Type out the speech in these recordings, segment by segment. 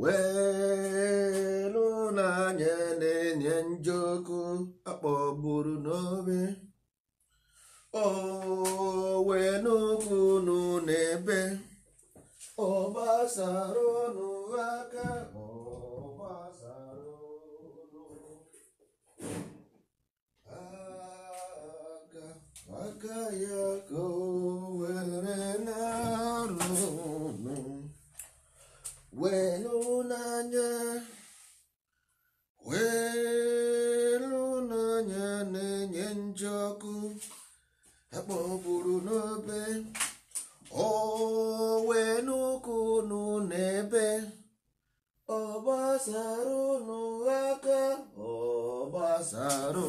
welu n'anya na-enye njoku akpọgburu n'obe owe n'ugwu unu n'ebe ọgbasara unu aka aka ya ka welụ n'anya na-enye nje ọkụ akpọburu n'obe owe n'ụkwụ nụ n'ebe ọ gbasara ụnụ aka ọ gbasara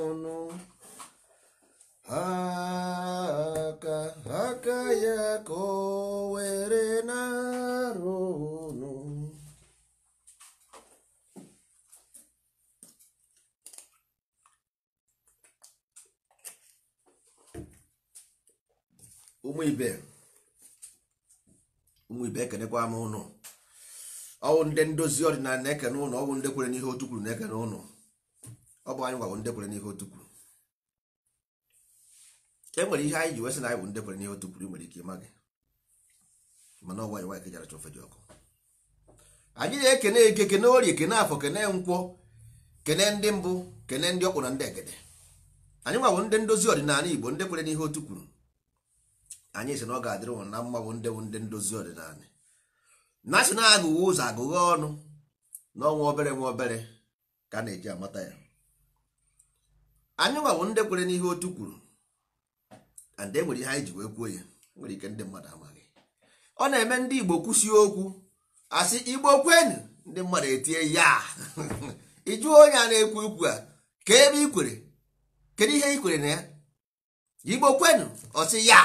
ụnụ aka aka ya ka ọ ụmụ ibe ụmụ ibe ekenekwa m ụnụ ọwụ ndị ndozi ọdịnala na-ekene ụnụ ọwụ ndị kwere n'ihe otu kwuru na-ekene ụnụ ọ bụ anyị gwawụ ndị kwere n'ihe otu kwuru e nwere ihe anyị ji wesị na anyị bụ nwere ike ịma gị mana e dị ọkụ na-ekene eke kene kene afọ kene nkwọ kene ndị mbụ kene ndị na ndị egede anyị ndị ndozi ọdịnala igbo ndị kwere n'ihe otu anyị si na ọ ga-adịrị ụnụ na mma bụ ndị bụ ndị ndozi ọdịnala na si na-agụghị ụzọ agụghị ọnụ n'ọnwa obere nwa obere ka a na-eji amata ya anyị nwa bụ ndị kwere n'ihe otu kwuru and e nwere ihe anyị ji wee kwuo ya e nwere ike ndị mmadụ amaghị ọ na-eme ndị Igbo kwụsie okwu asị Igbo kwenụ ndị mmadụ etie ya ịjụ onye a na-ekwu ikwu a ka ebe ikwere kedu ihe ikwere na ya Igbo kwenụ ọsị ya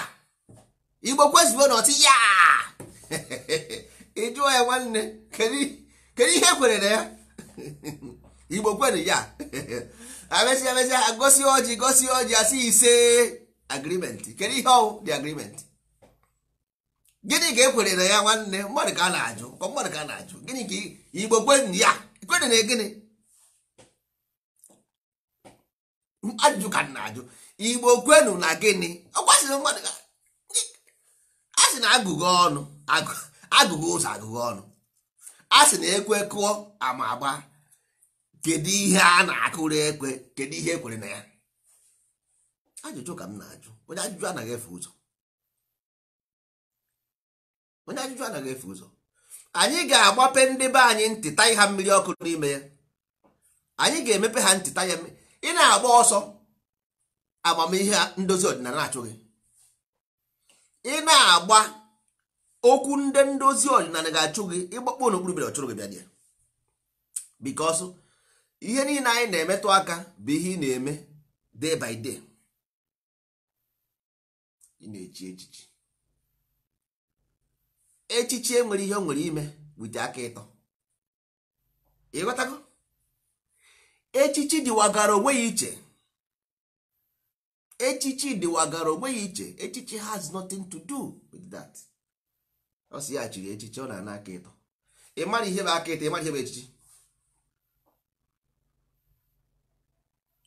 igbo kwezibo na ọtị ya ịjụọ ya nwanne kedu ihe kwere na ya igbo kwere ya amesịa amesịa gosi ọjị gosi ọjị asị ise agrimenti kedu ihe ọwụ dị agrimenti gịnị ka ekwere na ya nwanne mmadụ ka a na-ajụ ka mmadụ ka a na-ajụ gịnị ka igbo kwere ya kwere na gịnị ajụjụ ka na-ajụ igbo kwenu na gịnị ọ kwasịrị mmadụ ka. a sị na agụgụ ọnụ agụgụ ụzọ agụgụ ọnụ a sị na ekwe kụọ ama agba kedu ihe a na-akụrụ ekwe kedu ihe ekwere na ya ajụjụ ka m na-ajụ onye ajụjụ anaghị efe ụzọ onye ajụjụ anaghị efe ụzọ anyị ga-agbape ndị be anyị ntịta ha mmiri ọkụ n'ime ya anyị ga-emepe ha ntịta ya ị na-agba ọsọ amamihe ndozi ọdịnala achụghị ị na-agba okwu ndị ndozi ọdịnala ga-achụ gị ịgbakpọ n'okpuru bịara ọchụrụ gị bịa ya bikos ihe niile anyị na-emetụ aka bụ ihe ị na-eme day by day ị na-echi echichi echichi enwere ihe o nwere ime wite aka ịtọ ịghọtago echichi dịwagara onwe ya iche echichi dịwagara onwe ya iche echichi has nothing to do with that ọ si ya chiri echichi ọ na-ana aka ịtọ ị mara ihe bụ aka ịtọ ị mara ihe bụ echichi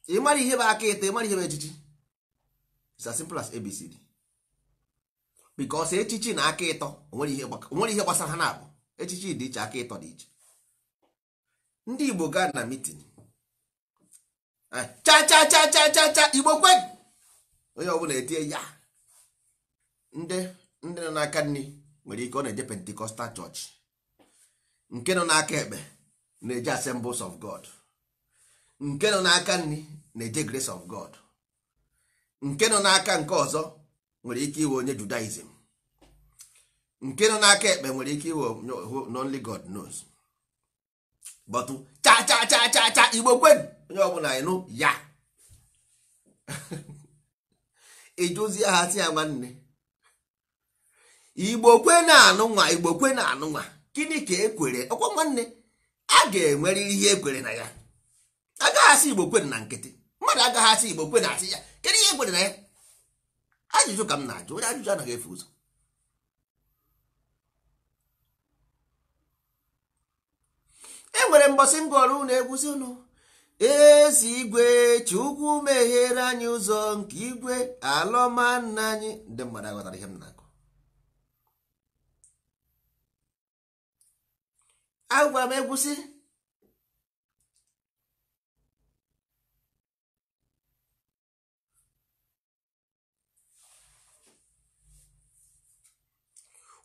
ị mara ihe bụ aka ịtọ ị mara ihe bụ echichi it's as simple as abcd because echichi na aka ịtọ onwere ihe gbasara ha na-abụ echichi dị iche aka ịtọ dị iche ndị igbo gaa na mitin eh, cha cha cha cha cha cha igbo kwe onye ọbụla etinye ya ndị ndị nọ n'aka nri nwere ike ọ na-eje pentecostal chọọchị nke nọ n'aka ekpe na-eje assembles of god nke nọ n'aka nri na-eje grace of god nke nọ n'aka nke ọzọ nwere ike iwe onye judaism nke nọ n'aka ekpe nwere ike iwe only god knows but cha cha cha cha cha igbo kwen onye ọbụla ịnụ ya ịjụzie ha si ya nwanne igbo kwe na-anụ nwa igbo kwe na-anụ nwa gịnị ka ekwere ọkwa nwanne a ga enwere ihe ekwere na ya agaghị asị igbo kwe na nkịtị mmadụ agaghị asị igbo kwe na asị ya kedu ihe ekwere na ya ajụjụ ka m na-ajụ onye ajụjụ anaghị efe ụzọ e nwere mbọsị ngụ ọrụ na egwuzi ụlọ ezi igwe chukwu meghere anyị ụzọ nke igwe alọma nna anyị ndị mmadụ aghọtara ihe m na-akọ Agwa m egwusi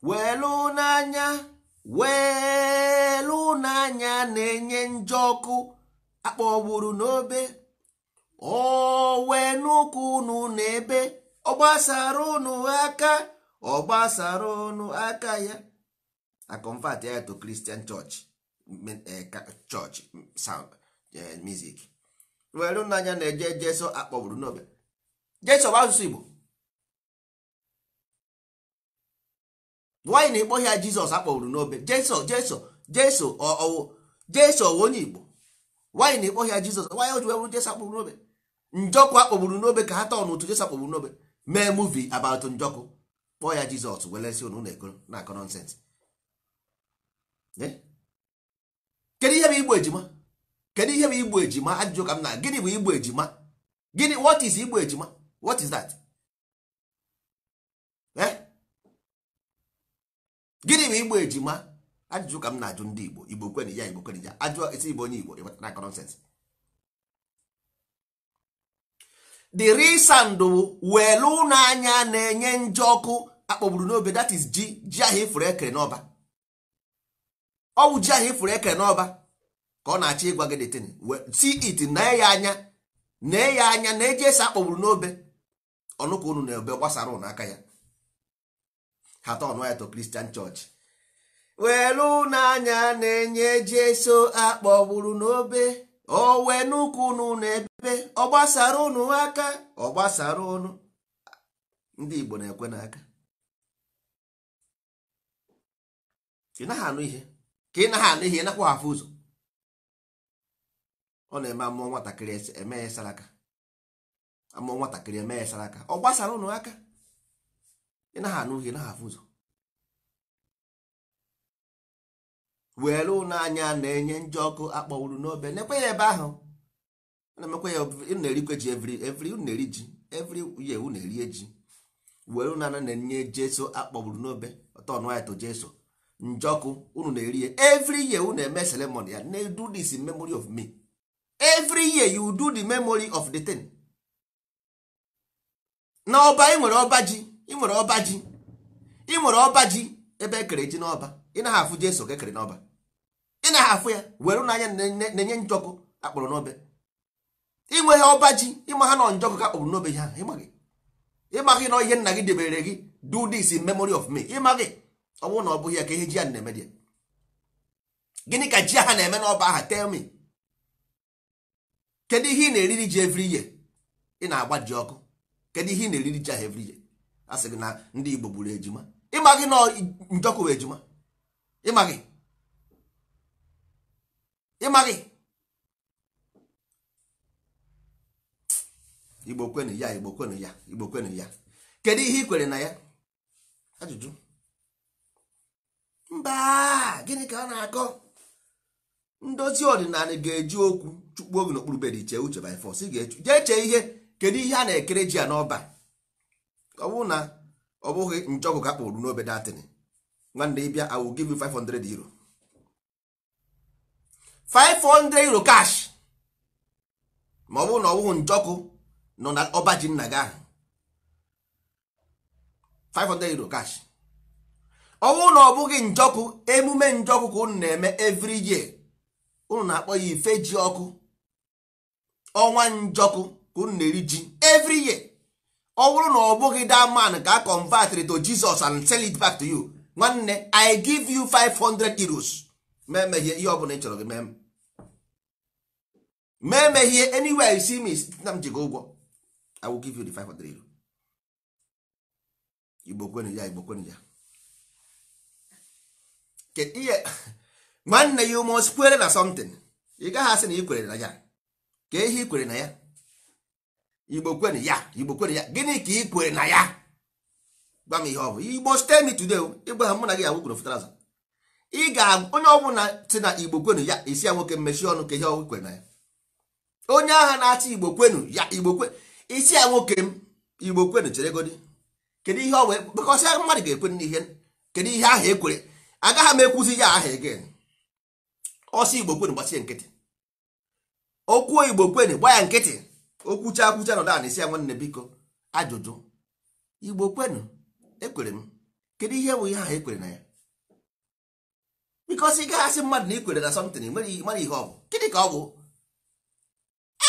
welu n'anya welu n'anya na-enye njọ ọkụ akpọgburu n'obe owe n'ụkwụ unu n'ebe ọ gbasara unu aka ọ gbasara unu aka ya a convert ya to Christian church eh, church sound eh, music were n'anya na-eje jeso akpọgburu n'obe jeso bụ asụsụ Igbo nwaanyị na-ekpọ ya Jizọs akpọgburu n'obe jeso jeso jeso ọwụ jeso onye Igbo nwaanyị na-ekpọ ya jizọs nwaanyị oji webụrụ jesa kpụrụ n'obe njọkwa kpọgburu n'obe ka ha tọọ n'otu jesa kpọgburu n'obe mee muvi abatụ njọkụ kpọọ ya jizọs welesi unu na-ekoro na akọ nọnsens kedu ihe bụ igbo ejima kedu ihe bụ igbo ejima ajụjụ ka m na gịnị bụ igbo ejima gịnị wọt is igbo ejima wọt is that eh? gịnị bụ igbo ejima ajụjụ ka m na-ajụ ndị igbo igbo kweni ya igbo kweni ya ajụọ isi igbo onye igbo ịbatara nonsense the reason bụ welu n'anya na-enye nje ọkụ akpọgburu n'obe that is ji ji ahụ ifuru ekere n'ọba ọwụ ji ahụ ifuru ekere n'ọba ka ọ na-achọ ịgwa gị detin see it na ya anya na ya anya na eji esi akpọgburu n'obe ọnụka unu na-ebe gbasara ụnụ aka ya hata ọnụ ya to Christian church welu n'anya na-enye jeso akpọgburu n'obe owe n'ụkwụ unu na ebe ọ gbasara ụnụ aka ọ gbasara ụnụ ndị Igbo na-ekwe n'aka ị naghị anụ ihe ka ị naghị anụ ihe ịnakwa hafụ ụzọ ọ na-eme amụọ nwatakịrị eme ya saraka amụọ nwatakịrị eme ya saraka ọ gbasara ụnụ aka ị naghị anụ ihe naghị afụ ụzọ were ụlọ anya na-enye njọ ọkụ akpọwuru n'obe nekwe ya ebe ahụ na-emekwa ya na-erikwe ji evri evri na-eri ji evri ye unu erie ji were ụlọ anya na-enye jeso akpọgburu n'obe ọtọnụaịtụ jeso njọkụ unu na-eri ya evri ye na eme ceremony ya na do this in memory of me every year you do the memory of the thing na ọba ị nwere ọba ji ị nwere ọba ji ị nwere ọba ji ebe ekere ji n'ọba ị na afụ jeso ka ekere n'ọba ị na-ahafụ ya were n'anya na-enye njọkụ akpụrụ n'obe inweghị ọba ji ịma ha nọ njọkụ ka akpụrụ n'obe ha ịmaghị na ihe nna gị debere gị do this in memory of me ịmaghị ọ bụrụ na ọ bụghị ya ka ihe ji ya na-eme dị gịnị ka ji ha na-eme n'ọba aha tell me kedu ihe ị na-eriri ji every year ị na-agba ji ọkụ kedu ihe ị na-eriri ji ahụ every year a sị gị na ndị Igbo gburu ejima ịmaghị na njọkụ bụ ejima ịmaghị ịmaghị igbo kwenu ya igbo kwenu ya igbo kwenu ya kedu ihe ị kwere na ya ajụjụ mba gịnị ka ọ na-akọ ndozi ọdịnala ga-eji okwu chukwu oge n'okpuru bed chee uche by force jee chee ihe kedu ihe a na-ekere ji ya n'ọba ọ bụrụ na ọ bụghị njọkụ ka kpụrụ n'obe nwanne ịbịa awụ will 500 euro 500 euro cash ma ọ bụrụ na ọ njọkụ nọ na ọba ji nna gị ahụ 500 euro cash ọ bụrụ na ọ bụghị njọkụ emume njọkụ ka unu na-eme every year unu na-akpọ ya ife ji ọkụ ọnwa njọkụ ka unu na-eri ji every year ọ bụrụ na ọ bụghị that man ka a convert to Jesus and sell it back to you nwanne I give you 500 euros mee ihe ọ bụla ị chọrọ gị mee mee me ihe anywhere you see me na m ji gị ụgwọ i will give you the 500 igbo kwenu ya igbo kwenu ya ihe nwanne ya must kwere na something ị gaghị asị na ị kwere na ya ka ehi kwere na ya igbo kwenu ya igbo kwenu ya gịnị ka ị kwere na ya gwa m ihe ọ bụ igbo stay me today ịgwa ha mụ na gị ya wukwuru fụtara ị ga onye ọbụla si na igbo kwenu ya isi ya nwoke mmechi ọnụ ka ihe ọgwụ kwere na ya onye agha na-achị igbo kwenu ya igbo kwe isi ya nwoke m igbo kwenu chere godi kedu ihe ọ wee kpekọsịa mmadụ ga-ekwe n'ihe kedu ihe ahụ ekwere agaghị m ekwuzi ya aha egen ọsị igbo kwenu gbasie nkịtị okwuo igbo kwenu gba ya nkịtị okwucha akwucha nọ na isi ya nwanne biko ajụjụ igbo kwenu ekwere m kedu ihe bụ ihe ahụ ekwere na ya bikọsị ị gaghasị mmadụ na ikwere na something mara ihe ọ bụ gịnị ka ọ bụ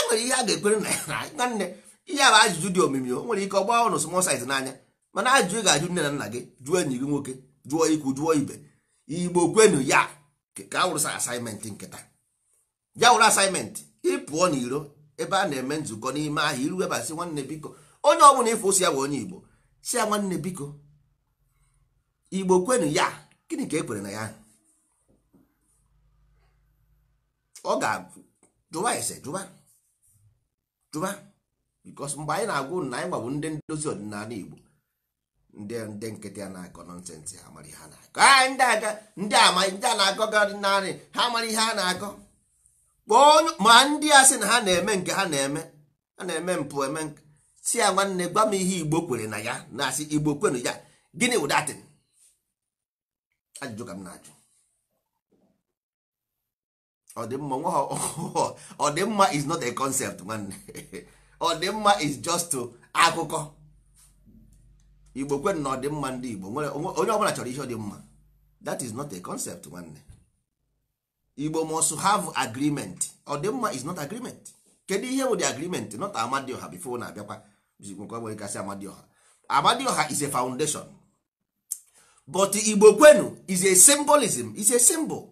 enwere ihe a ga-ekwere nwanne ihe bụ ajụjụ dị omimi o nwere ike ọ gbaa ụnụ small n'anya mana ajụjụ ga-ajụ nne na nna gị jụọ enyi gị nwoke jụọ ikwu jụọ ibe igbo kwenu ya ka a wụrụsa asaịmentị nkịta ya wụrụ asaịmentị ịpụọ n'iro ebe a na-eme nzukọ n'ime ahịa iru ebasị nwanne biko onye ọ bụla ịfụ osi ya bụ onye igbo si ya nwanne biko igbo kwenu ya gịnị ka e kwere na ya ọ ga-ajụwa ese jụwa jụba because mgbe anyị na-agwa na anyị gbabụ ndị ndozi ọdịnala Igbo ndị ndị nkịtị a na-akọ nọnsensị ha mara ihe a na-akọ a ndị aga ndị ama ndị a na-akọ gị ọdịnala ha mara ihe a na-akọ kpọọ ma ndị a sị na ha na-eme nke ha na-eme ha na-eme mpụ eme si ya nwanne gwa m ihe Igbo kwere na ya na-asị Igbo kwenu ya gịnị wụdatin ajụjụ ka m na-ajụ ọdịmma nwa ọdịmma is not a concept nwanne ọdịmma is just akụkọ igbo kwen na ọdịmma ndị igbo onye ọbụla chọrọ ihe ọdịmma that is not a concept nwanne igbo must have agreement ọdịmma is not agreement kedu ihe bụ the agreement not amadioha before na abịakwa bụzikwekasị amadioha amadioha is a foundation but igbo kwenu is a symbolism is a symbol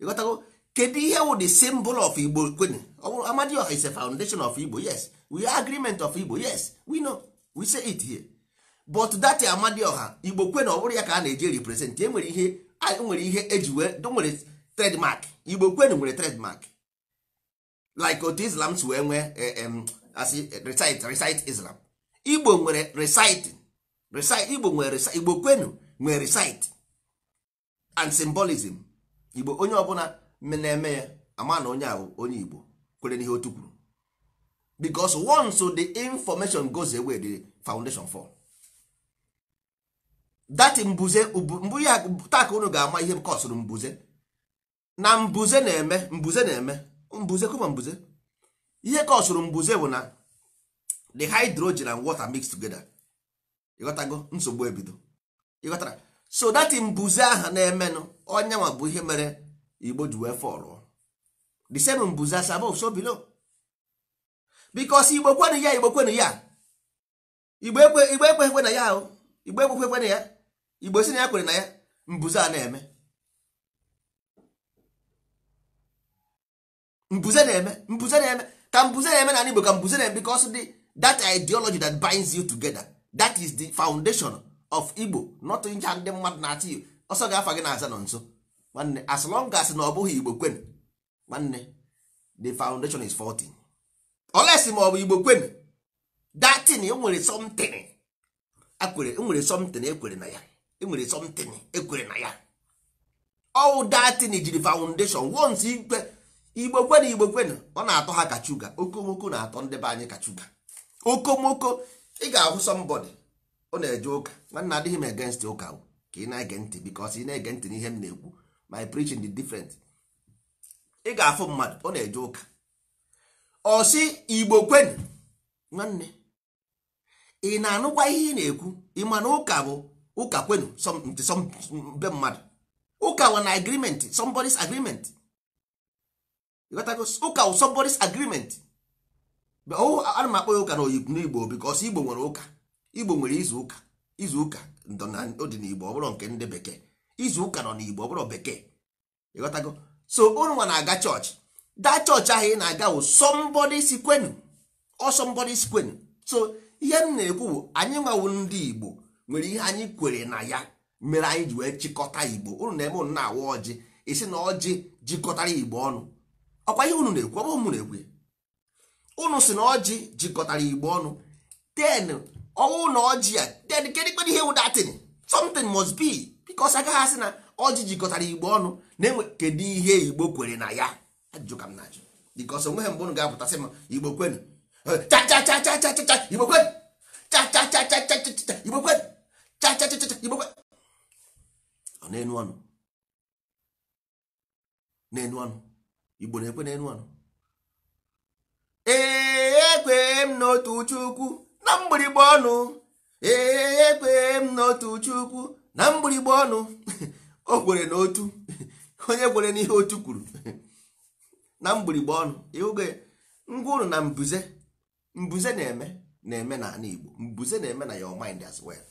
ịghọtago kedu ihe wụ the symbol of igbo kwenu amadioha is ise foundation of igbo yes we are agreement of igbo yes we know we say it here but that Ọha igbo kwenu ọ bụrụ ya ka a na-eji represent e nwere ihe e nwere ihe eji wee e nwere mark igbo kwenu nwere mark like otu islam si wee nwee e, asị recite recite islam igbo nwere reciting recite igbo nwere igbo kwenu nwere recite and symbolism igbo onye ọbụla na-eme ya ama na onye ahụ onye Igbo kwere n'ihe otu kwuru because once the information goes away the foundation for that mbuze mbu ya taka unu ga-ama ihe kọsụrụ mbuze na mbuze na-eme mbuze na-eme mbuze kụma mbuze ihe kọsụrụ mbuze bụ na the hydrogen and water mix together ịghọtago nsogbu ebido ịghọtara so that mbuze ahụ na-emenụ onye bụ ihe mere igbo ji wee fọlụ the same bụzi as above so below because igbo kwenụ ya igbo kwenụ ya igbo ekwe ekweghekwe na ya ahụ igbo kwe na ya igbo si na ya kwere na ya mbụze a na-eme mbụze na-eme mbụze na-eme ka mbụze na-eme na igbo ka mbụze na-eme because the that ideology that binds you together that is the foundation of igbo not ncha ndị mmadụ na-achị ọsọ ga-afa gị na aza nọ nso nwanne as long as na ọ bụghị igbo kwen nwanne the foundation is 14 oles ma ọ bụ igbo kwen datin enwere somtin akwere e somtin ekwere na ya enwere somtin ekwere na ya ọwụ datin jiri foundation once ikpe igbo kwen igbo kwen ọ na-atọ ha kachuga okomoko na-atọ ndị be anyị kachuga okomoko ị ga-ahụ somebody ọ na-eje ụka nwanne adịghị m against ụka ka ị na-ege ntị because ị na-ege ntị n'ihe m na-ekwu my preaching dị different ị ga-afụ mmadụ ọ na-eje ụka ọ igbo kwenu nwanne ị na-anụkwa ihe ị na-ekwu ị ma ụka bụ ụka kwenu be mmadụ ụka wụ na agreement somebody's agreement ụka wụ somebody's agreement oh, ana m akpọ ya ụka na oyibo n'igbo igbo nwere ụka igbo nwere izu ụka izu ụka dị n'igbo ọ bụrụ nke ndị bekee izu ụka nọ n'igbo ọ bụrụ bekee ịghọtago so ụnwa na-aga chọọchị daa chọọchị ahụ ị na-aga wụ sọmbọdị si ọsọmbọdị si so ihe m na-ekwu bụ anyị nwawu ndị igbo nwere ihe anyị kwere na ya mere anyị ji wee chịkọta igbo unu na-eme unu na-awa ọjị isi na ọjị jikọtara igbo ọnụ ọkwa ihe unu na-ekwu ọ bụ na-ekwu unu si na ọjị jikọtara igbo ọnụ ten ọnwụ na ọjị ya ten kedụ ihe wụ datin something must be bikos agaghị asị na ọjị jikọtara igbo ọnụ na-enwe kedu ihe igbo kwere na ya ajụjụ ka m na-ajụ bikos onweghị mgbe unu ga-apụtasị m igbo kwenu igbo kwenu igbo kwenu na-enu ọnụ na-enu ọnụ igbo na-ekwe na-enu ọnụ ee ekwee m n'otu chukwu na mgbịrịgba ọnụ ee ekwee m n'otu chukwu na mgbịrịgba ọnụ o kwere na otu onye kwere n'ihe otu kwuru na mgbịrịgba ọnụ ịhụge ngwa ụnụ na mbuze mbuze na-eme na-eme na ala Igbo mbuze na-eme na your mind as well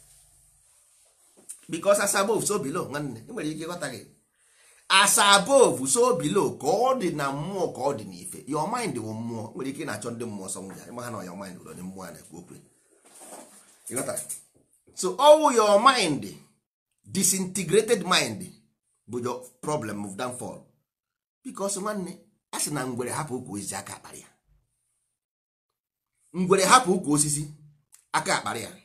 because as above so below nwanne enwere ike ịghọta gị as above so below ka ọ dị na mmụọ ka ọ dị n'ife your mind wụ mmụọ nwere ike na-achọ ndị mmụọ sọ nwụnya ịma ha na your mind ụlọ ndị mmụọ na-ekwu okwu ịghọta so ọwụ your mind disintegrated mind bụ your problem of downfall because nwanne a sị na ngwere hapụ ukwu osisi aka akpara ya ngwere hapụ ukwu osisi aka akpara ya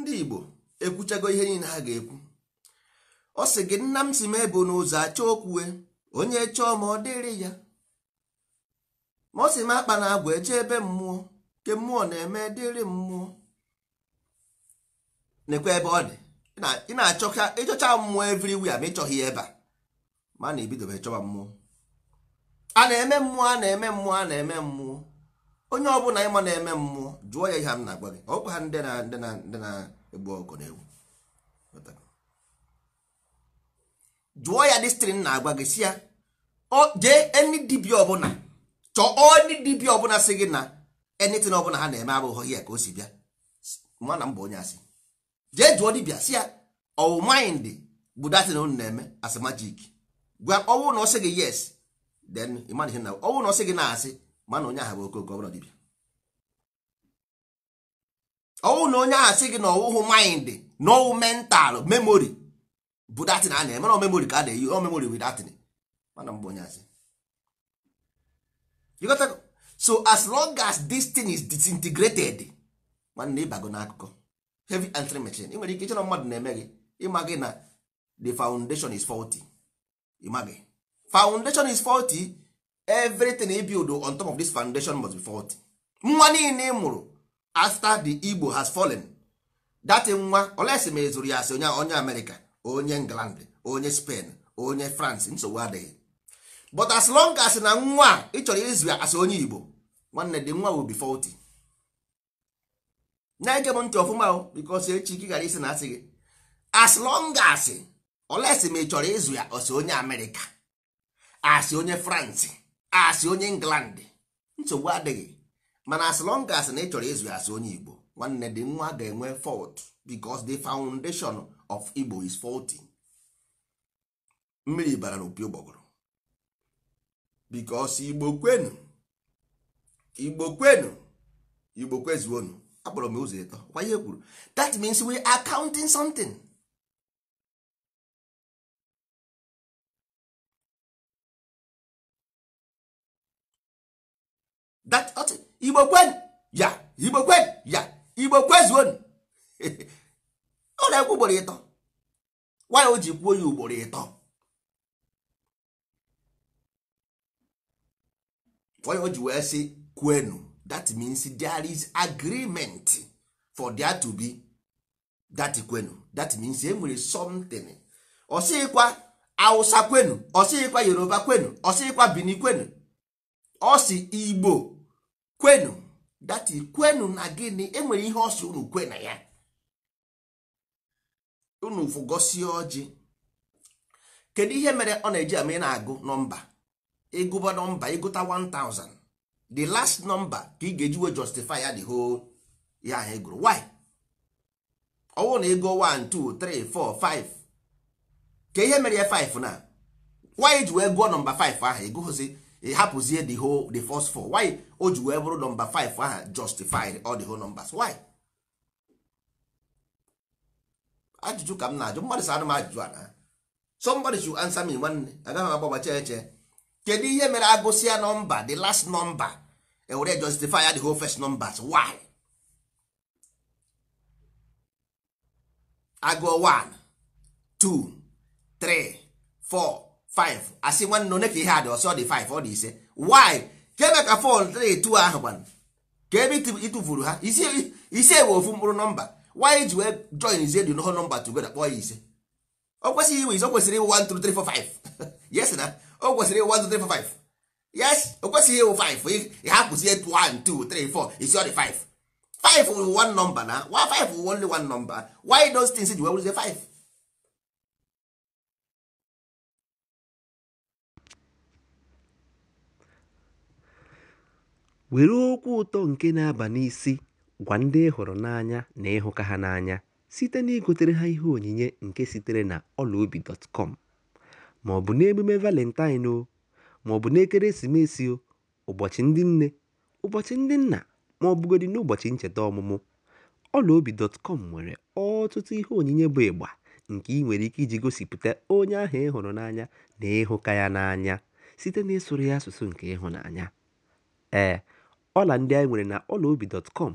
ndị Igbo ekwuchago ihe niile ha ga-ekwu ọ sị gị nna m si m ebe n'ụzọ achọ okwue onye chọọ ma ọ dịrị ya ma ọ sị m akpa na agwa eje ebe mmụọ nke mmụọ na-eme dịrị mmụọ nekwe ebe ọ dị ị na-achọcha ịchọcha mmụọ everywhere ma ịchọghị ya ebe a ma na ebidobe chọba mmụọ a na-eme mmụọ a na-eme mmụọ a na-eme mmụọ onye ọbụla ịma na-eme mmụọ jụọ ya ihe m na-agwa gị ọkwa ha ndị na-egbu ọkụ na ewu jụọ ya destrin na-agwa gị si ya jee eni dibia ọbụla chọọ eni dibia ọbụla si gị na enitin ọbụla ha na-eme abụghị ya ka o si bịa mana m bụ onye asị jee jụọ dibia si ya ọwụ mind bụ datin unu na-eme as majik gwa ọwụ na ọ sị gị yes then ịmana ihe na ọwụ na ọ sị gị na-asị mana onye ahụ bụ okooko ọbụla dibia ọwụ na onye ahụ sị gị na ọwụhụ mind na ọwụ mental memory bụ datin a na-eme na memori ka a na-eyi o memori wi datin mana mgbe so as long as this thing is disintegrated nwanne ịbago n'akụkọ heavy entry machine ị nwere ike ịchọrọ mmadụ na-eme gị ịma gị na the foundation is faulty ịma gị foundation is faulty everything e build on top of this foundation must be faulty nwa niile mụrụ after the Igbo has fallen that nwa olesi ma ezuru ya asị onye America. onye england onye spen onye france nsogbu adịghị but as long as na nwa ị chọrọ izu as onye igbo nwanne dị nwa will be faulty na-ege m ntị ọfụma o because echi gị gara isi na asị gị as long as olesi ma ị chọrọ ịzụ ya ọsị onye amerịka asị onye france asị onye england nsogbu adịghị mana as long as na ị chọrọ ịzụ ya asị onye igbo nwanne dị nwa ga-enwe fault because the foundation of igbo is faulty mmiri bara n'opi ụgbọgụrụ bikos igbo kwenu igbo kwenu igbo kwezuonu akpọrọ m ụzọ ịtọ kwa ihe e kwuru that means we are counting something igbo kwenu ya igbo kwenu ya igbo kwezuonu ọ na-ekwu ugboro ịtọ nwaanyị o ji kwuo ya ugboro ịtọ nwaanyị o ji wee sị kwenu that means there is agreement for there to be that kwenu that means e nwere something ọsịkwa awụsa kwenu ọsịkwa Yoruba kwenu ọsịkwa Bini kwenu ọsị Igbo kwenu that kwenu na gịnị enwere ihe ọsị sị unu kwe na ya unu vụgosie ọjị kedu ihe mere ọ na-eji ama ị na-agụ nọmba ịgụba nọmba ịgụta 1000 the last number ka ị ga-ejiwe justify ya the whole ya ahụ egụrụ why ọwụ na ego 1 2 3 4 5 ka ihe mere ya 5 na why ji wee gụọ nọmba 5 ahụ ịgụghụzi hapụzie the whole the first 4 why o ji wee bụrụ nọmba 5 ahụ justified all the whole numbers why ajụjụ ka m na-ajụ mmadụ sadụ m ajụjụ a na somebody should answer me nwanne agaghị m agbabacha eche kedu ihe mere agụsịa nọmba the last number ewere justify the whole first numbers why agụọ 1 2 3 4 5 asị nwanne onye ka ihe a dị ọsọ dị 5 ọ dị ise why keme ka fọl 3 2 ahụ gbanụ ka ebe ịtụfuru ha isi ewe ofu mkpụrụ nọmba why ji wee join zie edu noho nọmba together kpọọ ya ise o kwesịghị iwe ise o kwesịrị ịwụ one two three four five yes na o kwesịrị ịwụ 1 yes o kwesịghị iwu 5 ha kwụzie 1 isi ọ dị 5 5 wụ one nọmba na 5 wụ only one number why those things ji wee wụrụzie 5 were okwu ụtọ nke na-aba n'isi Gwa ndị ị hụrụ n'anya na ịhụka ha n'anya site na igotere ha ihe onyinye nke sitere na ọlaobi.com ma ọ bụ n'emume Valentine ma ọ bụ n'ekeresimesi, ụbọchị ndị nne, ụbọchị ndị nna ma ọ bụgodị n'ụbọchị ncheta ọmụmụ, ọlaobi.com nwere ọtụtụ ihe onyinye bụ ịgba nke ị nwere ike iji gosipụta onye ahụ ịhụrụ n'anya na ịhụka ya n'anya site n'ịsụrụ ya asụsụ nke ịhụnanya. Ee, ọla ndị anyị nwere na ọlaobi.com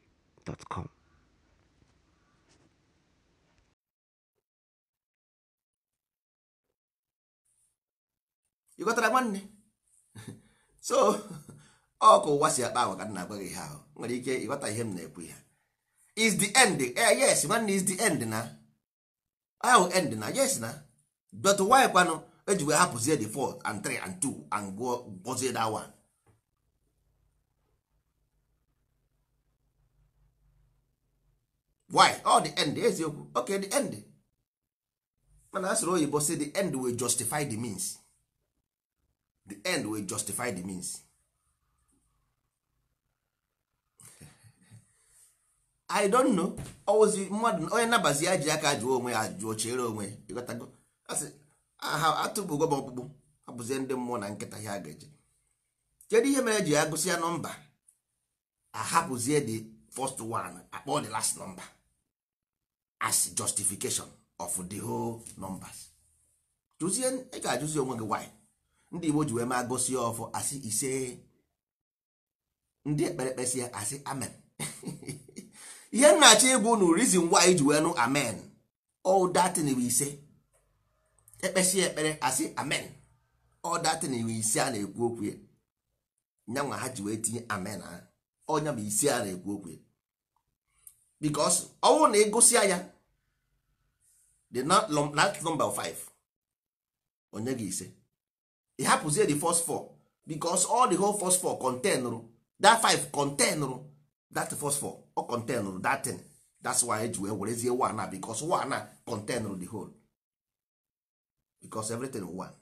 gmail.com ịghọtara nwanne so ọkụ oh, ụwa si akpa ahụ ka na-agwa ihe ahụ nwere ike ịghọta ihe m na-ekwu ya is the end eh, eh yes nwanne is the end na ahụ end na yes na but why kwanụ ejiwe hapụzie the 4 and 3 and 2 and gbozie that one why all oh, the end eziokwu okay the end mana a sịrị oyibo say the end will justify the means the end will justify the means i don't know ozi mmadụ onye nabazi ya ji aka jụọ onwe ya jụọ chere onwe ịghọtago asị aha atụbugo m ọkpụkpụ abụzie ndị mmụọ na nkịta ya ga-eje kedu ihe mere ji ya gụsị ya nọmba ahapụzie the first one akpọ the last number as justification of the whole numbers jụzie ị ga-ajụzi onwe gị why ndị Igbo ji wee ma gosi ọfụ asị ise ndị ekperekpe si ya asị amen ihe nnachi ịbụ nu reason why ji wee nụ amen all that ise ekpesi ekpere asị amen all that ise a na-ekwu okwu ya nyanwa ha ji wee tinye amen ha ọnya bụ ise a na-ekwu okwu ya because ọnwụ na ịgụsịa ya the last number 5 onye gị ise ị hapụzie the first four because all the whole first four containụrụ that 5 containụrụ that first four contain containụrụ that ten that's why eji wee werezie one na because one na containụrụ the whole because everything one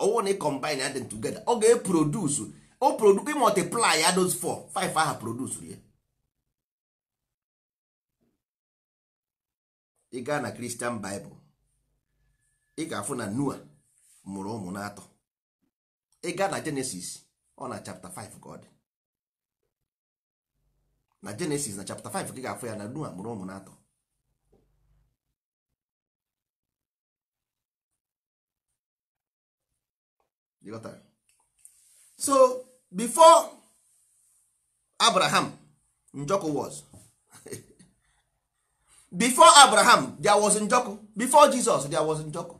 ọnwụ na e combine them together ọ ga-eproduce o produce multiply ya those five 5 ha produce ya ị gaa na kristian baịbụl ị ga-afụ na noa mụrụ ụmụ n'atọ ị gaa na jenesis ọ na chapta 5 ka ọ dị na jenesis na chapta 5 ka ị ga-afụ ya na noa mụrụ ụmụ n'atọ so before abraham njọkụ was before abraham there was njoku. before jesus there was njọkụ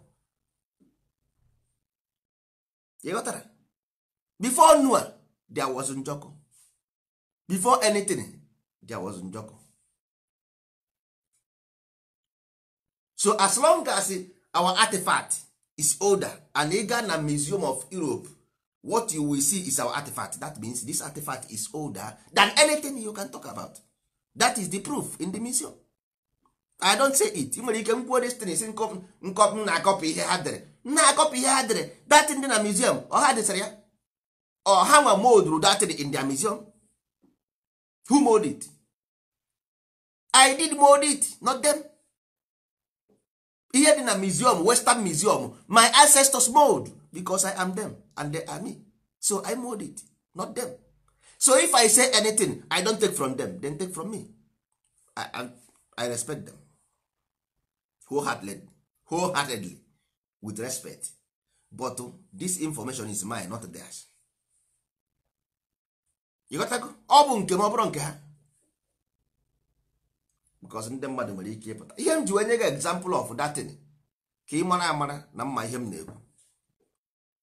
ịghọtara before noah there was njoku. before anything there was njoku. so as long as our artifact is older and ị gaa na museum of europe what you will see is our artifact that means this artifact is older than anything you can talk about that is the proof in the museum i don't say it ị nwere ike m kwuo destin si nkọm na-akọpụ ihe ha dere na-akọpụ ihe ha dere datin dị na museum ọha desara ya ọha nwa moduru datin in their museum who mode it i did mode it not them ihe dị na museum western museum my ancestors mold because i am them and they are me so i mode it not them so if i say anything i don't take from them then take from me i, I, I respect them wholeheartedly, wholeheartedly with respect but oh, this information is mine not theirs. ịghọtago ọ bụ nke m ọ bụrụ nke ha because ndị mmadụ nwere ike ịpụta ihe m ji wee nye gị example of that thing ka ị mara amara na mma ihe m na-ekwu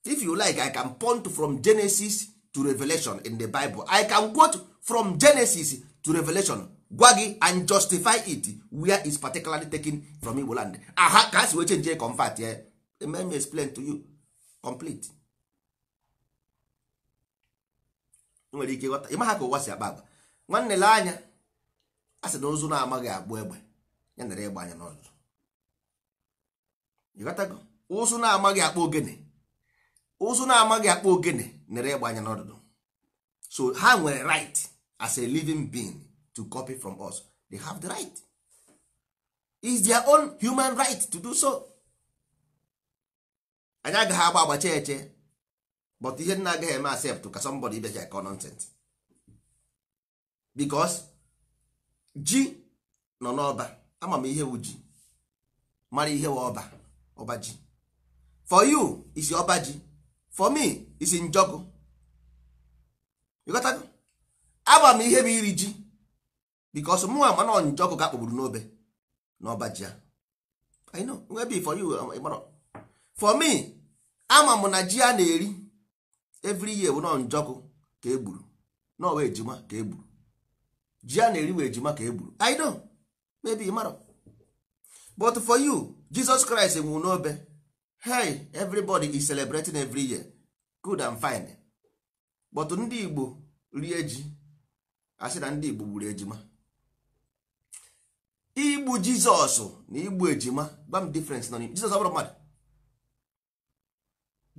if you like i can point from genesis to revelation in the bible i can quote from genesis to revelation gwa gị and justify it where is particularly taken from Igbo land aha ka ha si wee chenjie comfort ya eh? eme me explain to you complete nwere ike ịghọta ịma ha ka ụwa si akpa agba nwanne lee anya a sị na ozu na-amaghị agbụ egbe ya nara ịgba anya n'ọzụzụ ịghọtago ụzụ na-amaghị akpa ogene ụzụ na-amaghị akpa ogene nara ịgba anya n'ọdụdụ so ha nwere right as a living being to copy from us they have the right is their own human right to do so anyị agaghị agba agbacha eche but ihe nna agaghị eme accept ka somebody ibecha ka nonsense because ji nọ n'ọba ama m ihe ji mara ihe wa ọba ọba ji for you is ọba ji for me isi njọkụ ịghọtago ama m ihe bụ iri ji because mụ ama nọ njọkụ ọkụ ka n'obe n'ọba ji ya I know be for you um, for me ama m na ji a na-eri every year bụ nọ njọkụ ka egburu n'ọwa ejima ka egburu ji a na-eri wee ejima ka egburu I know maybe ịmarọ but for you Jesus Christ nwụrụ n'obe hey everybody is celebrating every year good and fine but ndị Igbo rie ji asị na ndị Igbo gburu ejima igbu jizọs na igbu ejima gwa m difference nọ n'ime jizọs ọ bụrụ mmadụ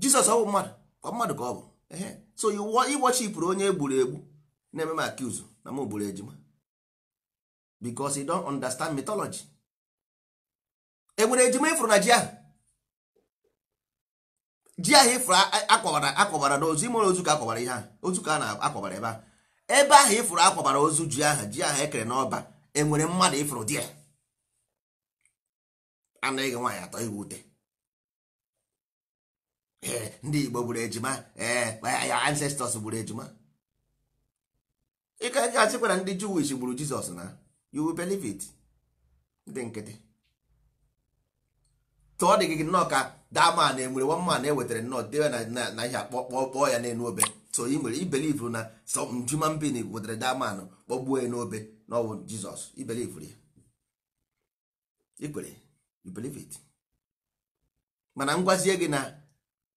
jizọs ọ bụ mmadụ kwa mmadụ ka ọ bụ ehe so ịgbochipụrụ onye egburu egbu na-eme m akiuzu na m gburu ejima bikos you don't understand mythology enwere ejima ịfụrụ na ji ahụ ji ahụ ịfụrụ akwabara akwabara n'ozu ime ozu ka akwabara ihe ahụ ozu ka a na-akwabara ebe ahụ ebe ahụ ịfụrụ akwabara ozu ji ahụ ji ahụ ekere n'ọba enwere mmadụ ịfụrụ di ya anaghị nwaanyị atọ iwu ute e, ndị Igbo gburu ejima ee ya ancestors gburu ejima ịka ga-asịkwara ndị Jewish gburu Jizọs na you believe it ndị nkịtị tụọ dị gị nnọọ ka daman enwere one e ewetara nnọọ dewe na ihe akpọkpọ kpọọ ya n'elu obe so ị nwere ibelivu na some human being wetara daman kpọgbuo ya n'obe na ọ bụ Jizọs i believe ya ikwere you it mana ngwazie gị na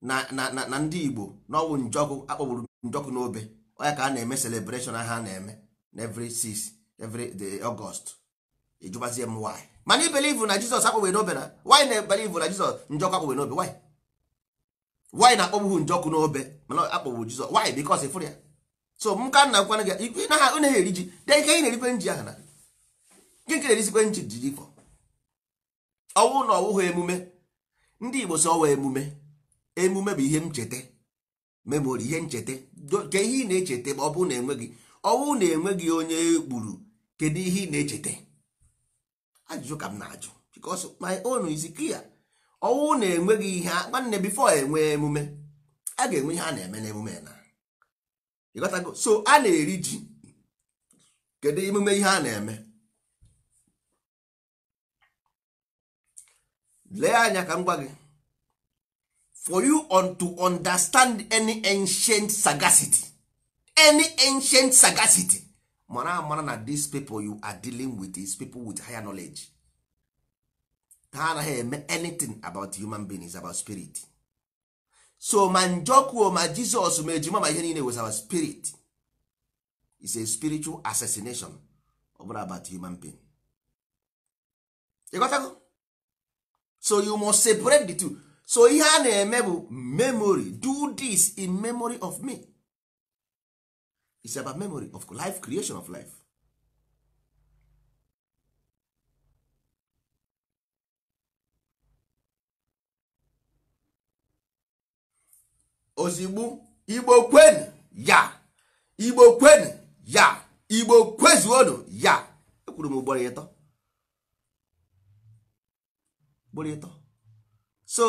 na na na ndị Igbo n'ọwụ njọkụ akpọgburu njọkụ n'obe onya ka a na-eme celebration ha na-eme na every six every the August ịjụbazie m why mana i believe na Jizọs akpọgbere n'obe na why na believe na Jizọs njọkụ akpọgbere n'obe why na akpọgbughị njọkụ n'obe mana akpọgburu Jizọs why because ịfụrụ ya so m ka na gwana gị ikwe na ha na eri ji de ihe ị na-erikwe nji ahụ na gị nke na-erisikwe nji ji ifọ ọnwụ na ọwụghị emume ndị igbo si ọwa emume emume bụ ihe ncheta memori ihe ncheta ke ihe ị na-echeta ma ọ bụrụ na enweghị ọnwụ na enweghị onye gburu kedu ihe ị na-echeta ajụjụ ka m na-ajụ because my own is clear ọnwụ na enweghị ihe nwanne bifo enwe emume a ga-enwe ihe a na-eme n'emume na so a na-eri ji kedu emume ihe a na-eme lee anya ka m gwa gị for you on to understand any ancient sagacity any ancient sagacity mara amara na these people you are dealing with is people with higher knowledge ha anaghị eme anything about human beings about spirit so ma njọkuo ma jizọs ma ejima ma ihe niile was our spirit is a spiritual assassination ọ about human being ịghọtago so you must separate the two so ihe a na-eme bụ memory do this in memory of me is about memory of life creation of life ozigbo igbo kwenu ya igbo kwenu ya igbo kwezuonu ya ekwuru m ugboro ịtọ ugboro ịtọ so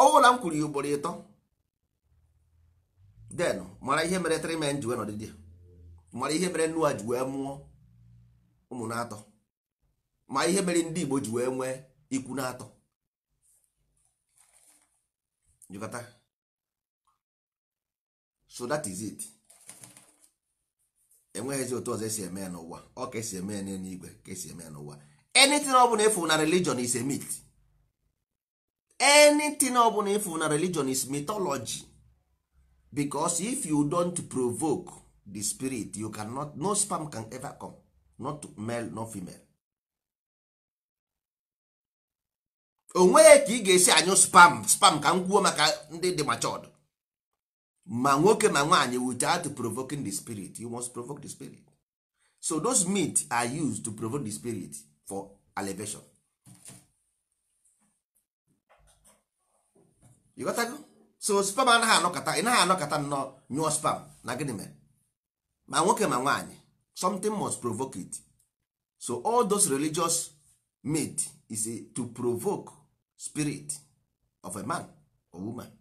ọwụla m kwuru ya ugboro ịtọ den mara ihe mere three men ji wee nọdịdị mara ihe mere Noa ji wee mụọ ụmụ na-atọ ma ihe mere ndị Igbo ji wee nwee ikwu na-atọ jikọta so that is it enweghịzi otu ọzọ esi eme ya n'ụwa ọ ka esi eme ya n'eluigwe ka esi eme ya n'ụwa anything ọ bụla ịfụ na religion is a myth anything ọ bụla ịfụ na religion is mythology because if you don't provoke the spirit you cannot no sperm can ever come not male not female onweghị ka ị ga-esi anyụ spam spam ka m kwuo maka ndị dị machọdụ ma nwoke ma nwaanyị without provoking the spirit you must provoke the spirit so those myths are used to provoke the spirit for elevation you got that? so spam anaghị anọkọta ị naghị anọkọta nnọọ nyụọ spam na gịnị mere ma nwoke ma nwaanyị something must provoke it so all those religious meat is to provoke spirit of a man or woman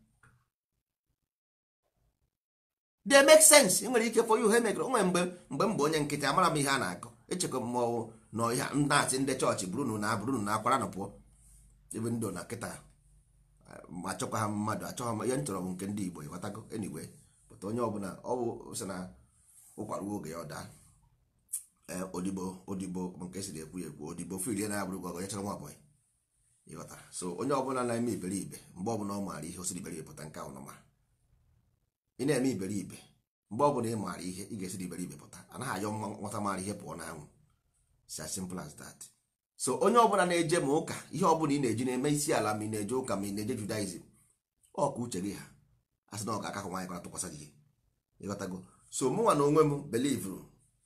they make sense nwere ike for you ha emegre onwe mgbe mgbe mgbe onye nkịtị amara m ihe a na-akọ echekwa mmọnwụ na ihe nnaasị ndị chọọchị burunu na burunu na akwara nụ pụọ ebe ndụ na nkịta um, achọkwa ha mmadụ achọghị m ihe m chọrọ m nke ndị Igbo ịghọtago enigwe pụta onye ọbụla ọ bụ sị na ụkwaruo oge ya ọ daa eh, odibo odibo nke siri ekwu ekwu odibo fil na abụrụ gwa onye chọrọ nwa ọbụla ịghọtara so onye ọbụla na-eme iberibe mgbe ọbụla ọ maara ihe o iberibe pụta nke ahụ ị na-eme iberibe mgbe ọ bụla ị maara ihe ị ga-esi iberibe pụta anaghị ayọ nwata maara ihe pụọ n'anwụ si as simple as that so onye ọbụla na-eje ma ụka ihe ọbụla ị na-eji na-eme isi ala ma ị na-eje ụka ma ị na-eje judaism ọ uche gị ha asị na ọ ga-akahụ nwaanyị kwara tụkwasị gị ịghọtago so mụnwa na onwe m believe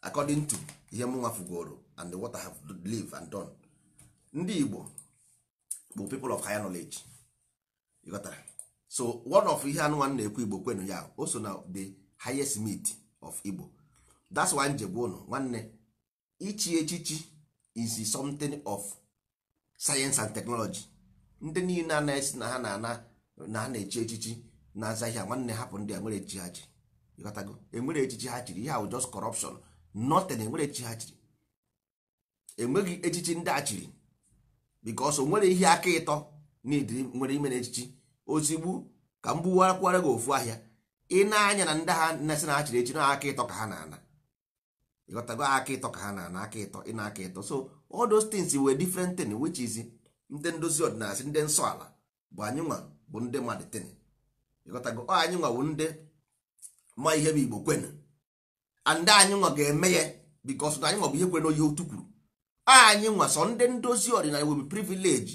according to ihe mụnwa fugoro and the water have live and done ndị Igbo bụ people of higher knowledge ịghọtara so one of ihe anụmanụ na-ekwu igbo kwenu ya o so na the highest meat of igbo that's why njegbu ụnụ nwanne ichi echichi is something of science and technology ndị niile na ha na na ha na-echi echichi na-aza ihe nwanne hapụ ndị a nwere echichi ha chiri ịghọtago enwere echichi ha chiri ihe just corruption nothing enwere echichi ha chiri enweghị echichi ndị a chiri because o nwere ihe aka ịtọ na nwere ime na echichi ozigbo ka m gbuwakwara gị ofu ahịa ị na-anya na ndị ha na-asị na achịrị echi na aka ịtọ ka ha na-ana ịghọtago aka ịtọ ka ha na-ana aka ịtọ ị na aka ịtọ so all those things were different thing which is ndị ndozi ọdịnala ndị nsọ ala bụ anyị nwa bụ ndị mmadụ tin ịghọtago anyị nwa bụ ndị ma ihe bụ igbo kwenu and anyị nwa ga-eme ya because na anyị nwa bụ ihe kwenu oyi otu kwuru anyị nwa sọ ndị ndozi ọdịnala will be privilege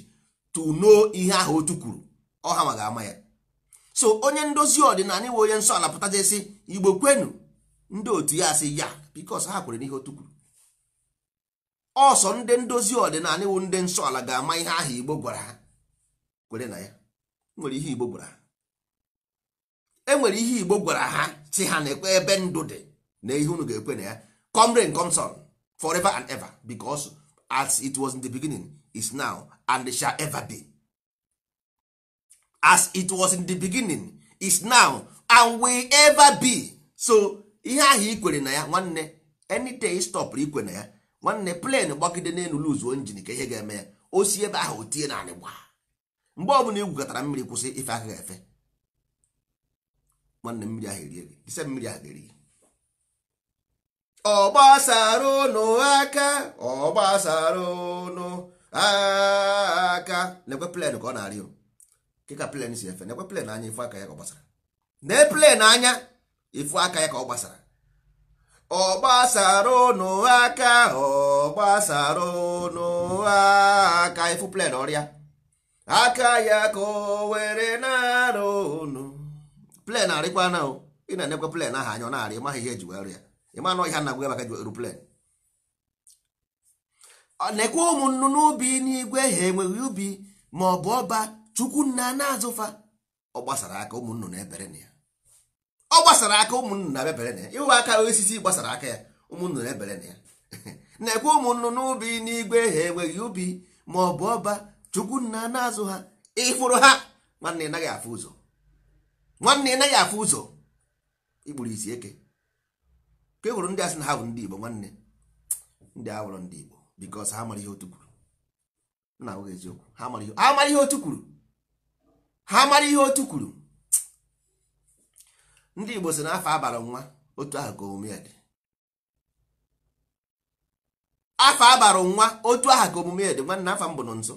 to know ihe ahụ otu kwuru ọha ma ga-ama ya so onye ndozi ọdịnala iwe onye nsọ ala pụtajesi igbo kwenu ndị otu ya asị ya bikos ha kwere n'ihe otu kwuru ọsọ ndị ndozi ọdịnala iwu ndị nsọ ala ga-ama ihe aha igbo gwara ha kwere na ya nwere ihe igbo gwara ha nwere ihe igbo gwara ha si ha na-ekwe ebe ndụ dị na ihe unu ga-ekwe na ya comrade rain come sun forever and ever because as it was in the beginning is now and shall ever be as it was in the beginning is now and will ever be so ihe ahụ kwere na ya nwanne any day stop ikwe na ya nwanne plane gbagide n'elu luzuo njin ka ihe ga-eme ya o si ebe ahụ o tie naanị gba mgbe ọbụla igwukọtara mmiri kwụsị ife aka efe nwanne mmiri ahụ erie gị ise mmiri ahụ erie ọ ụnụ aka ọgbasara ụnụ aka lekwe plen ka ọ na-arịọ ka plen si efe na-ekwe plen anya ifu aka ya ka ọ gbasara na plen anya ifu aka ya ka ọ gbasara ọ gbasara ụnụ aka ọ gbasara ụnụ aka ifu plen ọrịa aka ya ka o were na-arụ ụnụ plen arịkwa na ị na-enekwe plen ahụ anya ọ na-arị ịmaghị ihe eji were rịa ịma na ọhịa na-agwa maka eru plen nekwe ụmụ nnụnụ ubi n'igwe ha enweghị ubi ma ọ bụ ọba chukwu nna na azụfa ọ gbasara aka ụmụnnụ na ebere na ya ọ gbasara aka ụmụnnụ na ebere na ya ịwụ aka osisi gbasara aka ya ụmụnnụ na ebere na ya na-ekwe ụmụnnụ n'ubi n'igwe ha enweghị ubi ma ọ bụ ọba chukwu nna na azụ ha ịfụrụ ha nwanne ị naghị afụ ụzọ nwanne ị naghị afụ ụzọ ikpuru isi eke ka e hụrụ ndị asị na ha bụ ndị Igbo nwanne ndị awụrụ ndị Igbo bikos ha mara ihe otu kwuru na-ahụghị eziokwu ha mara ihe otu kwuru ha mara ihe otu kwuru ndị Igbo si n'afọ abalị nwa otu ahụ ka omume dị afọ abalị nwa otu ahụ ka omume ya dị nwanne afọ mbụ nọ nso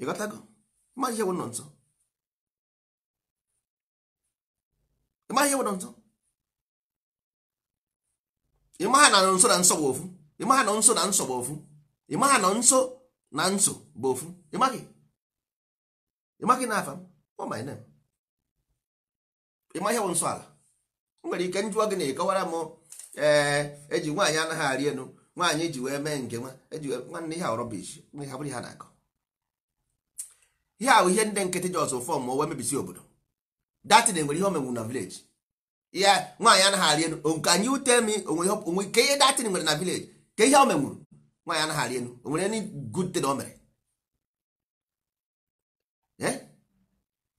ịghọtago ịmaghị ihe bụ nọ nso ịmaghị ihe bụ nọ nso ịmaha na nso na nso bụ ofu ịmaha na nso na nso bụ ofu ịmaha na nso na nso bụ ofu ịmaghị ịmaghị na afa m ọ my name ịma ihe nsọ ala O nwere ike njụọ gị na-ekọwara m ee eh, eji nwaanyị anaghị arị elu nwaanyị ji wee mee nke nwa eji nwanne ihe rọbish ha bụrụ ha na-akọ ihe ahụ ihe ndị nkịtị ji ọzọ fọm wee mebisi obodo datin nwere ihe omenwu na vileji ya nwaanyị anaghị arị elu nke anyị ute mi onwe ka ihe datin nwere na vileji ka ihe omenwuru nwaanyị anaghị arị elu o nwere any good thing o mere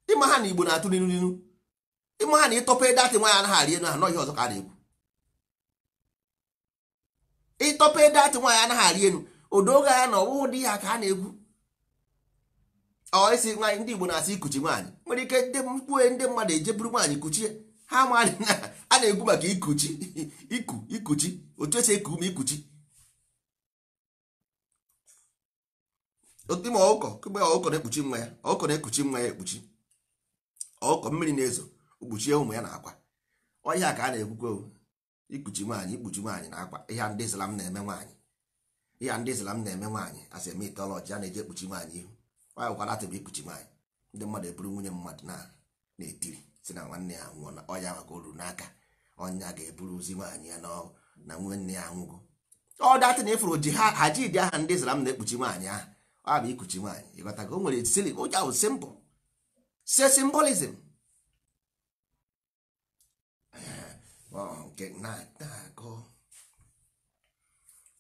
ịma ha na igbo na-atụ n'inu n'inu ịma ha na ịtọpa ede atị nwaanyị anaghị arị elu ha nọghị ọzọ ka a na-ekwu ịtọpa ede atị nwaanyị anaghị arị elu odoga ya na ọwụwụ dị ya ka a na-ekwu ọ isi nwaanyị ndị igbo na-asị ikuchi nwaanyị nwere ike ndị mkpue ndị mmadụ ejeburu nwaanyị kuchie ha ma a na-ekwu maka ikuchi iku ikuchi otu esi eku ume ikuchi ime ọkụkọ kegbe ọkụkọ na-ekpuchi nwa ya ọkụkọ na-ekpuchi nwa ya ekpuchi ọkụkọ mmiri na-ezo kpuchie ụmụ ya na akwa ọhịa ka a na-ekwukwe ikpuchi nwaanyị ikpuchi nwaanyị na akwa ihe ndị Islam na-eme nwaanyị ihe ndị Islam na-eme nwaanyị asị eme itọlọji a na-eji ekpuchi nwaanyị ihu nwaanyị kwara atịbụ ikpuchi nwaanyị ndị mmadụ eburu nwunye mmadụ na-etiri si na nwanne ya nwụọ na ọya maka oru n'aka ọnya ga-eburuzi nwaanyị ya na nwanne ya anwụgo ọ datị na ifuru ji ha ji dị aha ndị Islam na-ekpuchi nwaanyị ahụ a ah, bụ ikuchi nwaanyị ịghọtago o nwere ụja ahụ simbụ se simbolism nke eh, oh, na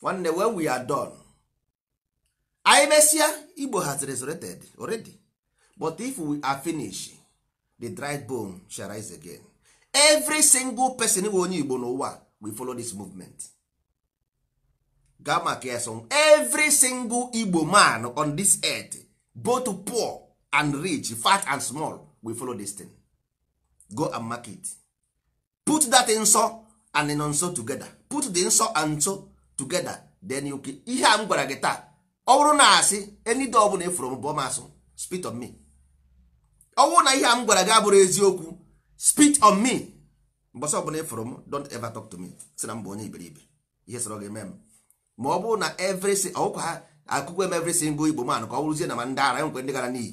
One nwanne when we are done anyị mesịa igbo has resurrected already but if we are finished the dry bone shall rise again every single person we onye igbo n'ụwa we follow this movement gaa maka ya single igbo man on this earth both poor and rich fat and small will follow this thing go and market put that nso and nonso together put the nso and nso together then you ihe a m gwara gị taa ọ bụrụ na asị enide ọbụla bụla e efuru m bụ masụ spit on me ọ bụrụ na ihe a m gwara gị abụrụ eziokwu spit on me mbọsị ọbụla efuru m don't ever talk to me na m bụ onye iberibe ihe sọrọ gị eme m ma ọ bụrụ na every ọkwa ha akụkọ em every single igbo man ka ọ bụrụzie na ma ndị ara enwekwe ndị gara n'iyi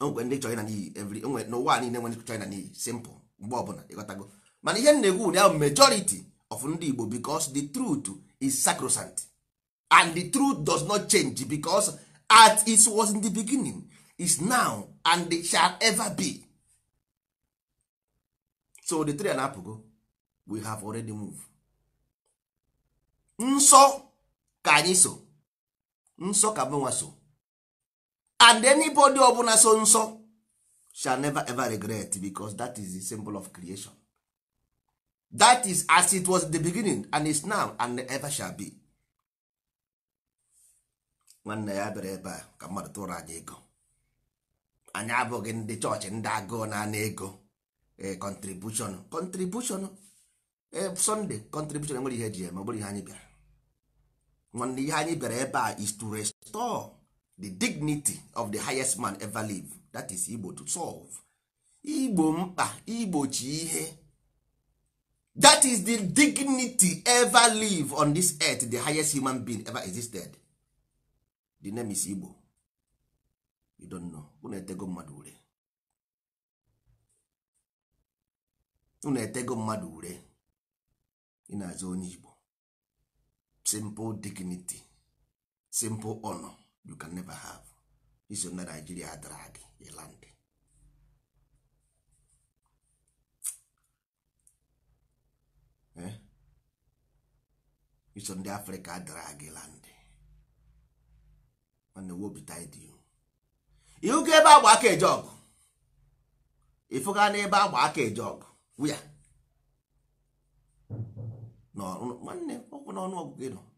enwekwe ndị chọrịna n'iyi every enwe n'ụwa niile nwere chọrịna n'iyi simple mgbe ọbụla ịghọtago mana ihe na-egwu na majority of ndị igbo because the truth is sacrosanct and the truth does not change because as it was in the beginning is now and it shall ever be so the three na-apụgo we have already moved. nsọ ka anyị so nsọ ka mụnwa so and anybody ọbụla so nsọ shall never ever regret because that is the symbol of creation that is as it was the beginning and is now and ever shall be nwanne ya bịara ebe a ka mmadụ tụrụ anyị ego anyị abụghị ndị chọọchị ndị agụụ na anị ego eh, contribution contribution eh, sunday contribution enwere ihe ji ma ọ bụrụ ihe anyị bịara nwanne ihe anyị bịara ebe a is to restore the dignity of the highest man ever live that is igbo to solve igbo mkpa igbochi ihe that is the dignity ever live on this earth the highest human being ever existed the name is igbo you don't know unu etego mmadụ ure unetego etego mmadụ ure ị na onye igbo simple dignity simple honor you can never have iso na Nigeria dara gị land eh? iso ndị Afrịka adara gị land mana wobita dị ihu ka ebe agba aka eje ọgụ ịfụga n'ebe agba aka eje ọgụ wia nwanne ọ bụ n'ọnụọgụgụ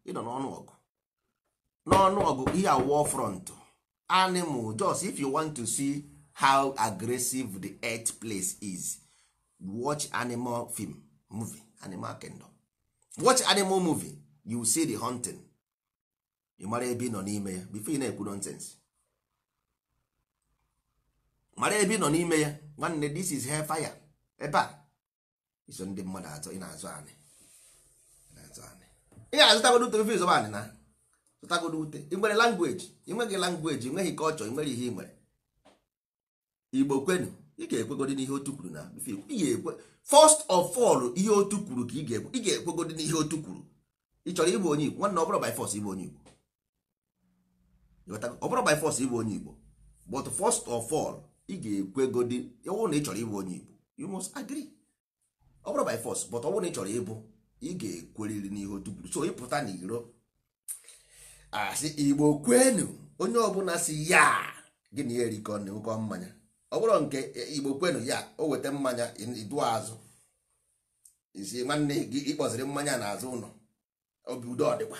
ịnọ n'ọnụ ọgụ ihe a war front animal just if you want to see how aggressive the earth place is watch animal film movie animal kingdom watch animal movie you see the hunting ị mara ebe nọ n'ime ya before you na-ekwu nonsense mara ebe nọ n'ime ya nwanne this is hellfire ebe a iso ndị mmadụ atọ ị na-azụ anyị ị ga-azụtagodo ute ofe izobandị na zụtagodo ute ị nwere langweji ị nweghị langweji ị nweghị kọlchọ ị nwere ihe ị nwere igbo kwenu ị ga-ekwegodi n'ihe otu kwuru na ị ga-ekwe first of all ihe otu kwuru ka ị ga-ekwegodi ekwe ga n'ihe otu kwuru ị chọrọ ịbụ onye igbo nwanne ọbụrụ by force ịbụ onye igbo ọbụrụ by force ịbụ onye igbo but first of all ị ga-ekwegodi ọwụ na ị chọrọ ịbụ onye igbo you must agree ọbụrụ by force but ọwụ na ị chọrọ ịbụ ị ga-ekweriri n'ihe otuburu so ịpụta na iro asị igbo kwenu onye ọbụla si ya gị na ya erikọ nnukwu mmanya ọ bụrụ nke e, igbo kwenu ya o weta mmanya idu azụ isi nwanne gị ịkpọziri mmanya n'azụ ụlọ obi udo ọdịkwa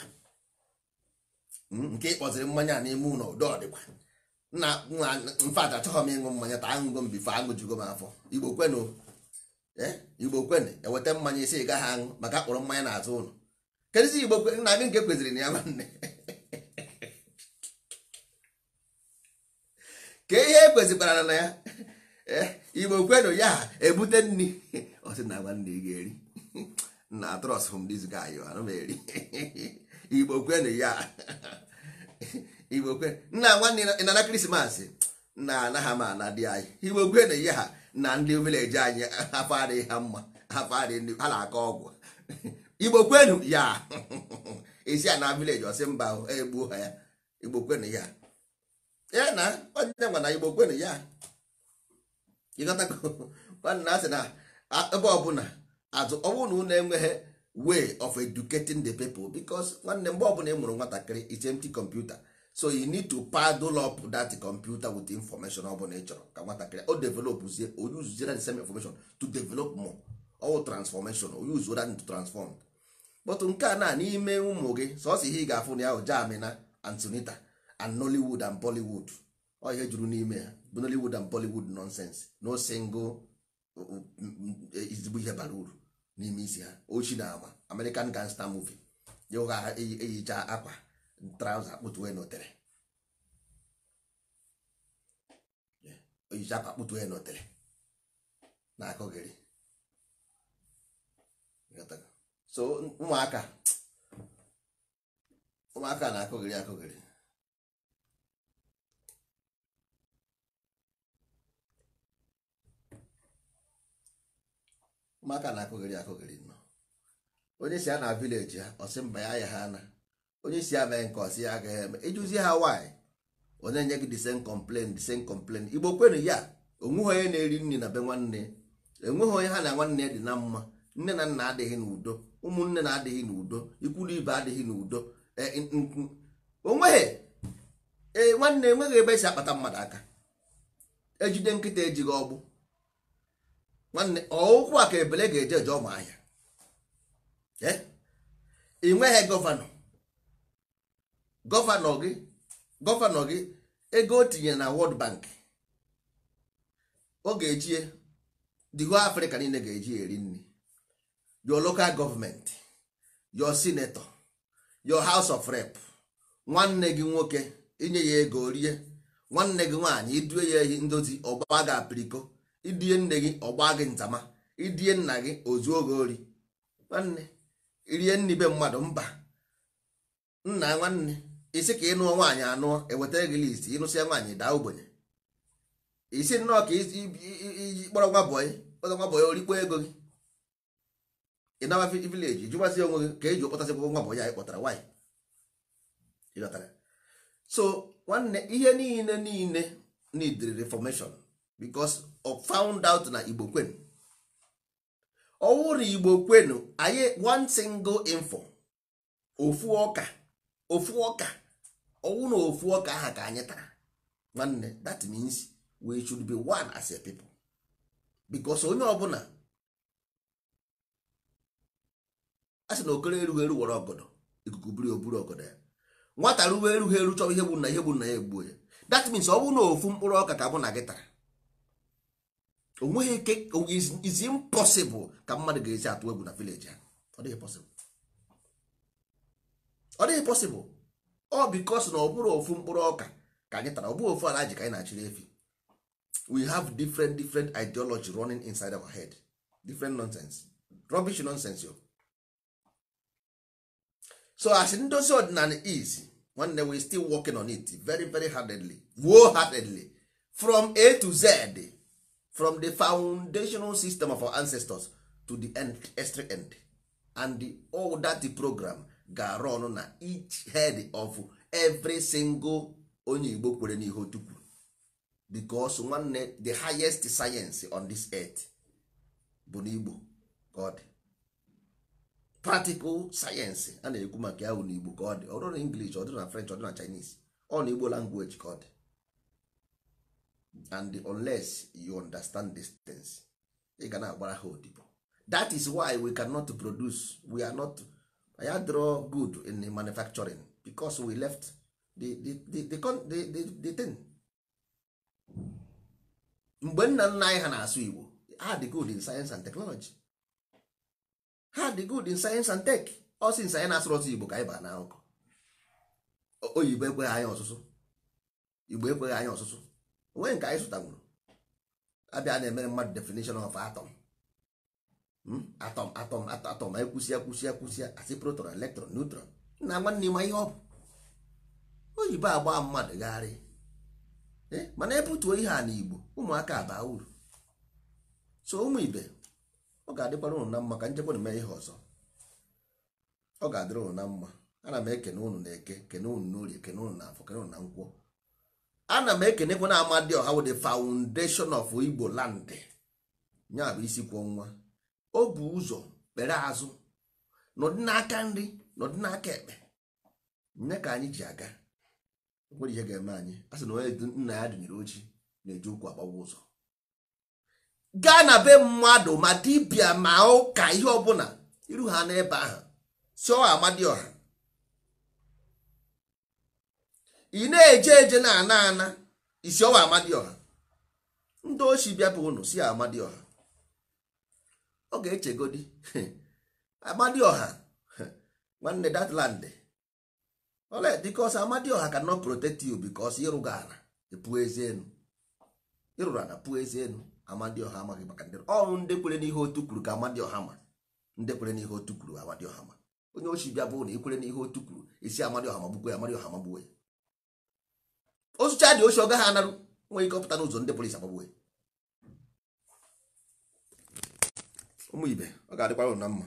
hmm, nke ịkpọziri mmanya n'ime ụlọ udo ọdịkwa na mfada achọghị m ịṅụ mmanya taa aṅụgo m aṅụjugo m afọ igbo kwenu Eh, igbo kwene eweta mmanya isi gaghị aṅụ maka akpọrọ mmanya n'azụ ụlọ kedụzi igbo nna gị nke kweziri na ya nwanne ka ihe ekwezikwara na ya eh, igbo kwenu ya ebute nri ọsị na agba nne ga-eri na trọs hom diz gayo anụmeri igbo kwenu ya igbo kwenu nna nwanne ị nana krismas na anaghị m na di anyị igbo kwenu ya ha na ndị vileji anyị afọ adịghị ha mma afọ adịghị ha na-akọ ọgwụ igbo kwenu ya isi a na vileji ọsị mba egbuo ha ya igbo kwenu ya ya na onye gwa na igbo kwenu ya ịgọtawanna asị na ebe ọbụla azụ ọ bụrụ na enweghị way of educating the people because nwanne mgbe ọbụla ị mụrụ nwatakịrị it's empty computer so you need to paddle up that computer with information ọ bụla ị chọrọ ka nwatakịrị o developzie o uziera the same information to develop more all transformation o use that to transform but nke a na n'ime ụmụ gị sọsọ ihe ị ga-afụ na ya hụ Germany antonita Sunita and Nollywood and Bollywood ọ ihe juru n'ime ya bụ Nollywood and Bollywood nonsense no single ezigbo ihe bara uru n'ime isi ha ochi na ama American gangster movie ya ụgha eyicha e, e, akwa trauza akpụtu onye notere oyizi akwa akpụtu onye notere na-akụghịrị so ụmụaka ụmụaka na-akụghịrị akụghịrị ụmụaka na-akụghịrị akụghịrị nọ onye si ya na vileji ha ọ sị mba ya ya ha na onye si abịa nke ọsị ya agaghị eme ịjụzie ha nwanyị onye nye gị the same complaint the igbo kwenu ya onweghị onye na-eri nri na be nwanne enweghị onye ha na nwanne dị na mma nne na nna adịghị n'udo ụmụnne na-adịghị n'udo ikwulu ibe adịghị n'udo e, onweghị ee nwanne enweghị ebe esi akpata mmadụ aka ejide nkịta ejighị ọgbụ nwanne ọụkwụ a ka ebele ga-eje eje ọmụ ahịa e? ị nweghị gọvanọ gọvanọ gị gọvanọ gị ego o tinyere na Wọld Bank ọ ga-eji the Afrịka niile ga-eji eri nri your local gọọmenti, your senator your house of rep nwanne gị nwoke inye ya ego rie nwanne gị nwaanyị idue ya ehi ndozi ọgba gị apiriko idie nne gị ọgba gị ntama idie nna gị ozu oge ori nwanne irie nni mmadụ mba nna nwanne isi ka ịnụọ nwaanyị anụọ ewetara gị list ịnụsịa nwaanyị daa ogbenye isi nnọọ ka iji kpọrọ nwa bọyị kpọrọ nwa bọyị orikpo ego gị ịnawa vileji jụbazie onwe gị ka eji kpọtasịkwa nwa bọyị anyị kpọtara nwaanyị ịghọtara so nwanne ihe niile niile need reformation because of found out na igbo kwenu ọwụrụ igbo kwenu anyị one single info ofu ọka ofu ọka ọnwụ na ofu ọka aha ka anyị tara nwanne that means we should be one as a people because onye ọbụla a sị na okoro erughị eru were ọgọdọ ikuku buru oburu ọgọdọ ya nwata ruwe erughị eru chọrọ ihe gburu na ihe gburu na ya egbuo ya that means ọ bụrụ na ofu mkpụrụ ọka ka bụ na gị tara onweghị ike is impossible ka mmadụ ga-esi atụ egwu na village ha ọ dịghị possible ọ dịghị pọsịbụl ọ bikos na ọ bụrụ ofu mkpụrụ ọka ka anyị tara ọ bụghị ofu ala ji ka anyị na-achịrị efi we have different different ideology running inside our head different nonsense rubbish nonsense yo so as ndozi ọdịnala is nwanne we still working on it very very hardedly wo hardly from a to z from the foundational system of our ancestors to the end, end and the, all that the program ga-arụ ọnụ na each head of every single onye igbo kwere n'ihe otukwu because one nwanne the highest science on this earth bụ n'igbo ka ọ dị practical science a na-ekwu maka ya n'igbo ka ọ dị ọ english ọ dụ na french ọ dụ na chinese ọ na igbo language ka ọ dị and unless you understand these things ị ga na-agbara ha odibo that is why we cannot produce we are not ya draw good in manufacturing because we left the, the, the, the, the, the thing mgbe nna nna anyị ha na-asụ igbo ha dị good in science and technology ha dị good in science and tech ọ since anyị na-asụrụ ọsụ igbo ka anyị baa na nkụ oyibo ekweghị anyị ọsụsụ igbo ekweghị anyị ọsụsụ onwe nke anyị zụtanwuru abịa na-emere mmadụ definition of atom atọm atọm atọm anyị kwụsịa kwụsịa kwụsịa asị proton electron neutron na nwanne ma ihe ọ bụ oyibo agba mmadụ gagharị eh, mana ebutuo ihe a n'Igbo ụmụaka abaa uru so ụmụ ibe ọ ga-adịkwara ụnụ na mma ka njekwa na mee ihe ọzọ ọ ga-adịrị ụnụ na mma ana m ekene unu na eke kene unu n'orie kene ụnụ na afọ kene ụnụ na nkwụ ana m ekenekwa na Amadioha wụ the foundation of Igbo land ya bụ isi kwụọ nwa o bu ụzọ kpere azụ n'ọdị n'aka nri n'ọdị n'aka ekpe nne ka anyị ji aga nwere ihe ga-eme anyị a sị na onye nna ya dịnyere ojii na-eji ụkwụ agbawa ụzọ gaa na be mmadụ ma dibịa ma ụka ihe ọbụla iru ha n'ebe ahụ si ọha amadioha ị na-eje eje na ana ana isi ọwa amadioha ndị ochi bịa bụ unu si amadioha ọ ga-echegodi amadioha nwanne that land because amadioha cannot protect you because ịrụga ala epu ezi enu ịrụrụ ala puo ezi enu amadioha amaghị maka ndị ọrụ ndị kwere n'ihe otu kwuru ka amadioha ma ndị kwere n'ihe otu kwuru amadioha ma onye ochi bịa bụ na ikwere n'ihe otu kwuru isi amadioha magbukwe ya amadioha magbukwe ya ozucha dị ochi ọ gaghị anarụ nwere ike ọpụta n'ụzọ ndị polisi agbagbuwe ụmụ ibe ọ ga-adịkwara ụna mma